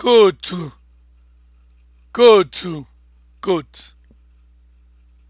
kootu kootu koot